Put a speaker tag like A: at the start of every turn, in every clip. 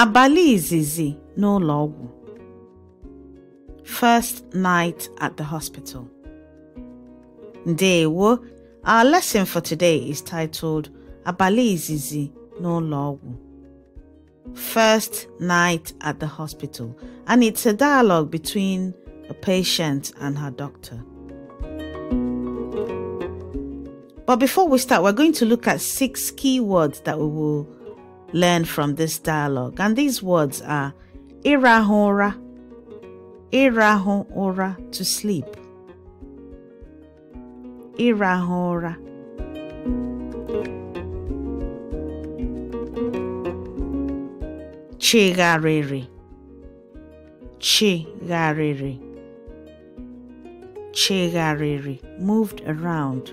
A: Abalị izizi n'ụlọ ọgwụ. First night at the hospital. Ndewo. Our lesson for today is titled Abalị izizi n'ụlọ ọgwụ. First night at the hospital, and it's a dialogue between a patient and her doctor. But before we start, we're going to look at six key words that we will learn from this dialogue. And these words are irahora, irahora, to sleep. Irahora. Chigariri. Chigariri. Chigariri. Moved around.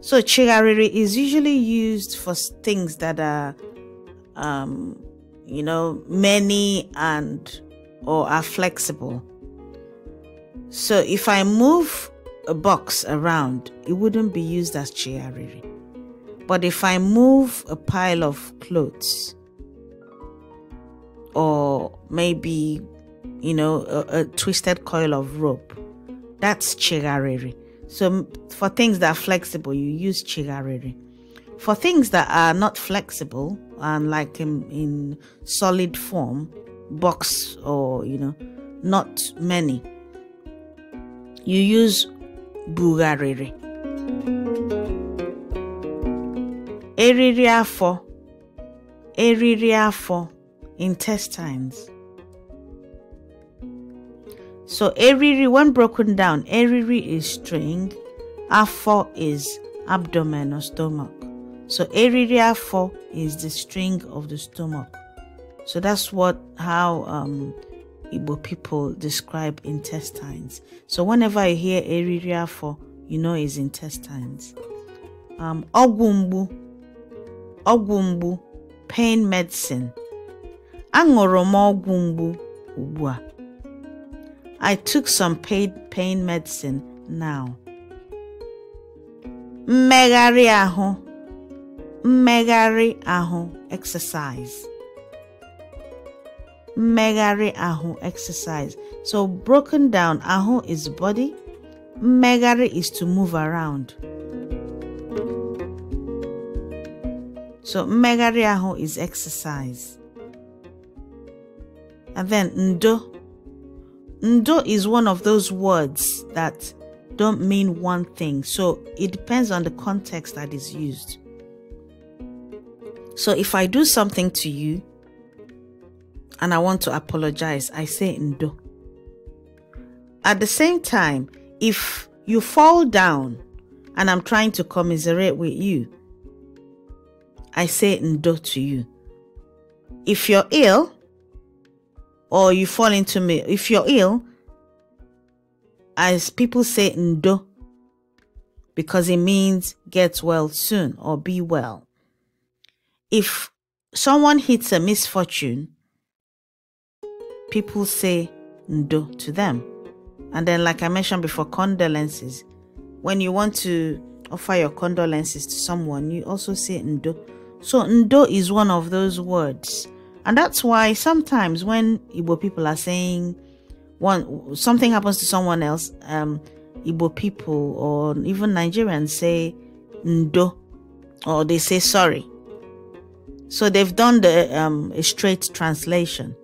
A: So chigariri is usually used for things that are, um, you know, many and or are flexible. So if I move a box around, it wouldn't be used as chiariri. But if I move a pile of clothes, or maybe, you know, a, a twisted coil of rope, that's chigariri. So for things that are flexible, you use chigariri. For things that are not flexible and like in, in solid form, box or you know, not many, you use bugariri. Eriri afọ, intestines. So eriri, when broken down, eriri is string, r4 is abdomen or stomach. So eriri r4 is the string of the stomach. So that's what how um, Igbo people describe intestines. So whenever you hear eriri r4, you know it's intestines. Um, ogumbu ogumbu pain medicine. Aṅụrụ ogumbu ọgwụ I took some pain medicine now. Mmegharị aho. Mmegharị aho exercise. Mmegharị aho exercise. So broken down, ahụ is body. Megari is to move around. So mmegharị aho is exercise. And then ndo Ndo is one of those words that don't mean one thing, so it depends on the context that is used. So if I do something to you and I want to apologize, I say Ndo. At the same time, if you fall down and I'm trying to commiserate with you, I say Ndo to you. If you're ill or you fall into me if you're ill as people say ndo because it means get well soon or be well if someone hits a misfortune people say ndo to them and then like i mentioned before condolences when you want to offer your condolences to someone you also say ndo so ndo is one of those words and that's why sometimes when Igbo people are saying one something happens to someone else, um, Igbo people or even Nigerians say ndo or they say sorry. So they've done the um, a straight translation.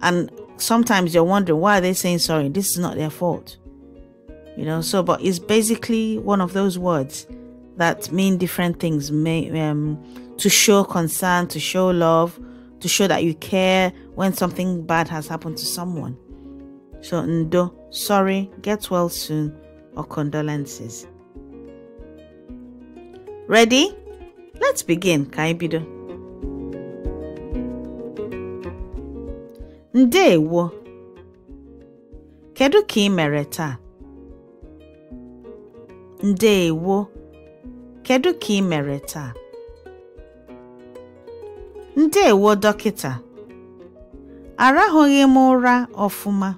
A: And sometimes you're wondering why are they saying sorry? This is not their fault. You know, so but it's basically one of those words that mean different things may, um, to show concern, to show love, to show that you care when something bad has happened to someone. So, Ndo, sorry, get well soon, or condolences. Ready? Let's begin, Kaibido. Ndewo. Kedu ka mereta? mere taa? Ndewo. Kedu ka ị ndewo dọkịta arahụghị m ụra ọfụma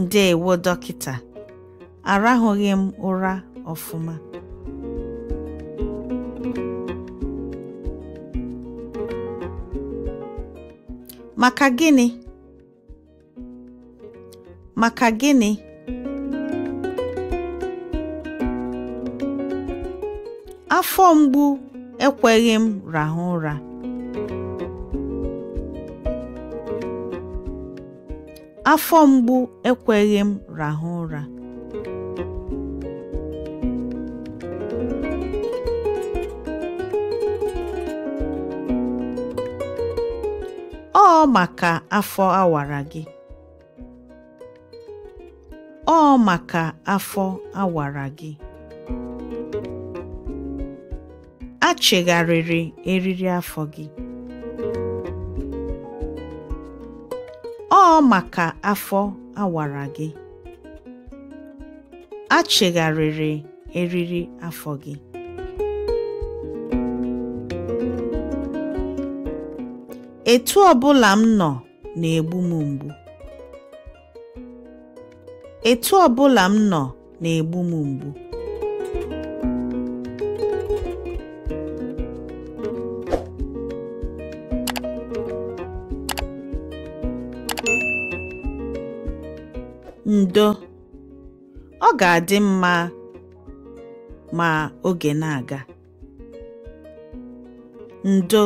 A: ndewo dọkịta arahụghị m ụra ọfụma maka gịnị maka gịnị afọ mgbu ekweghị m rahụ ụra afọ mgbu ekweghị m rahụ ụra ọ maka afọ awara gị ọ maka afọ awara gị a eriri afọ gị ọ maka afọ awara gị a eriri afọ gị etu ọbụla m nọ na-egbu m mgbu nọ na-egbu m mgbu ndo ọ ga-adị mma ma oge na-aga ndo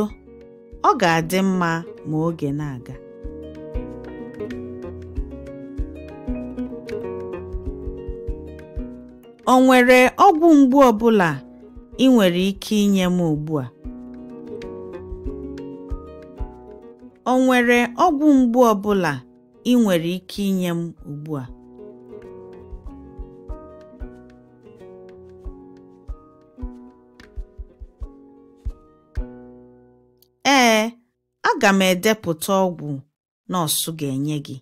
A: o nwere ọgwụ mgbu ọ ị nwere ike inye m ugbu ọgwụ mgbu ọ bụla ị nwere ike inye m ugbu a aga m edepụta ọgwụ nọọsụ ga-enye gị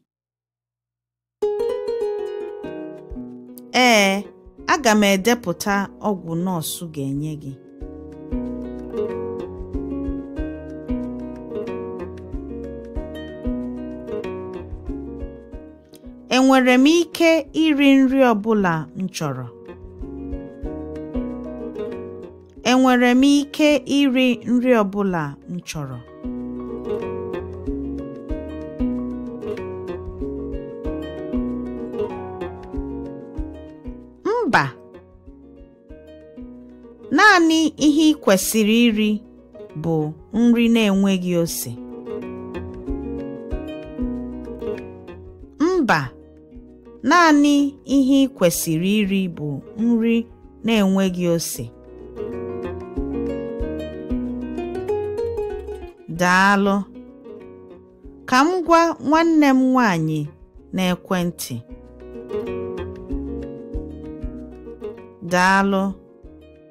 A: ee aga m edepụta ọgwụ nọọsụ ga-enye gị enwere m ike iri nri ọ bụla enwere m ike iri nri ọ bụla m chọrọ naanị ihe ị kwesịrị iri bụ nri na-enweghị ose mba naanị ihe ị kwesịrị iri bụ nri na-enweghị ose daalụ ka m gwa nwanne m nwanyị na-ekwentị. n'ekwentị daalụ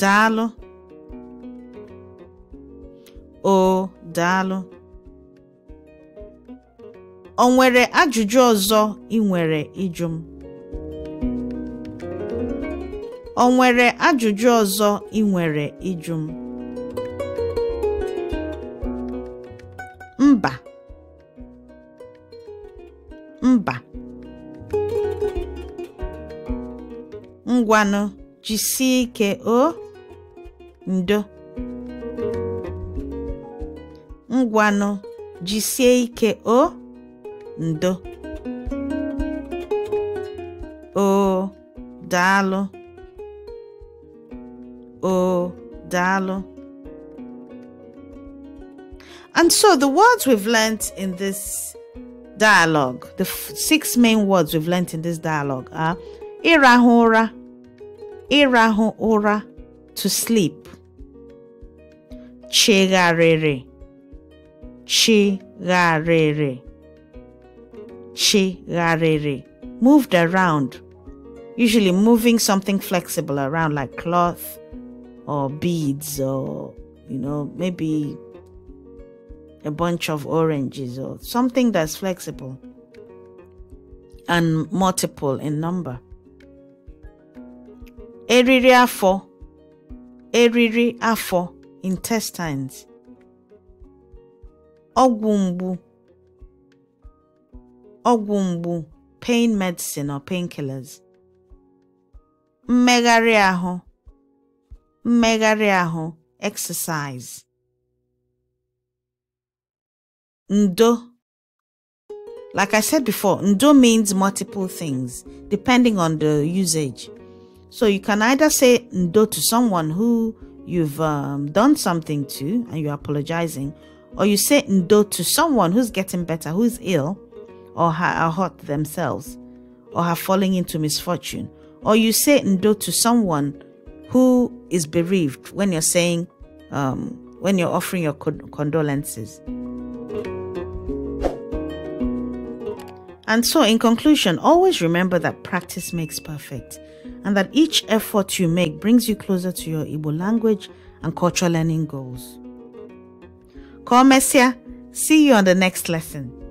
A: daalụ o daalụ o nwere ajụjụ ọzọ ị nwere ịjụ m o nwere ajụjụ ọzọ ị nwere ịjụ m mba mba ngwanụ jisie ike o ndo ngwanụ jisie ike o ndo o dalo o dalo And so the words we've learnt in this dialogue, the six main words we've learnt in this dialogue are irahura, irahura, to sleep, chigharịrị chigharịrị chigharịrị moved around usually moving something flexible around like cloth or beads or you know maybe a bunch of oranges or something that's flexible and multiple in number eriri afọ eriri afọ intestines ọgwụ mgbu ọgwụ mgbu pain medicine or painkillers mmegharị ahụ mmegharị ahụ exercise ndo like I said before, ndo means multiple things depending on the usage. So you can either say ndo to someone who you've um, done something to and you're apologizing, or you say ndo to someone who's getting better, who's ill, or are hurt themselves, or have falling into misfortune, or you say ndo to someone who is bereaved when you're saying, um, when you're offering your condolences. And so, in conclusion, always remember that practice makes perfect and that each effort you make brings you closer to your Igbo language and cultural learning goals. Komesia, see you on the next lesson.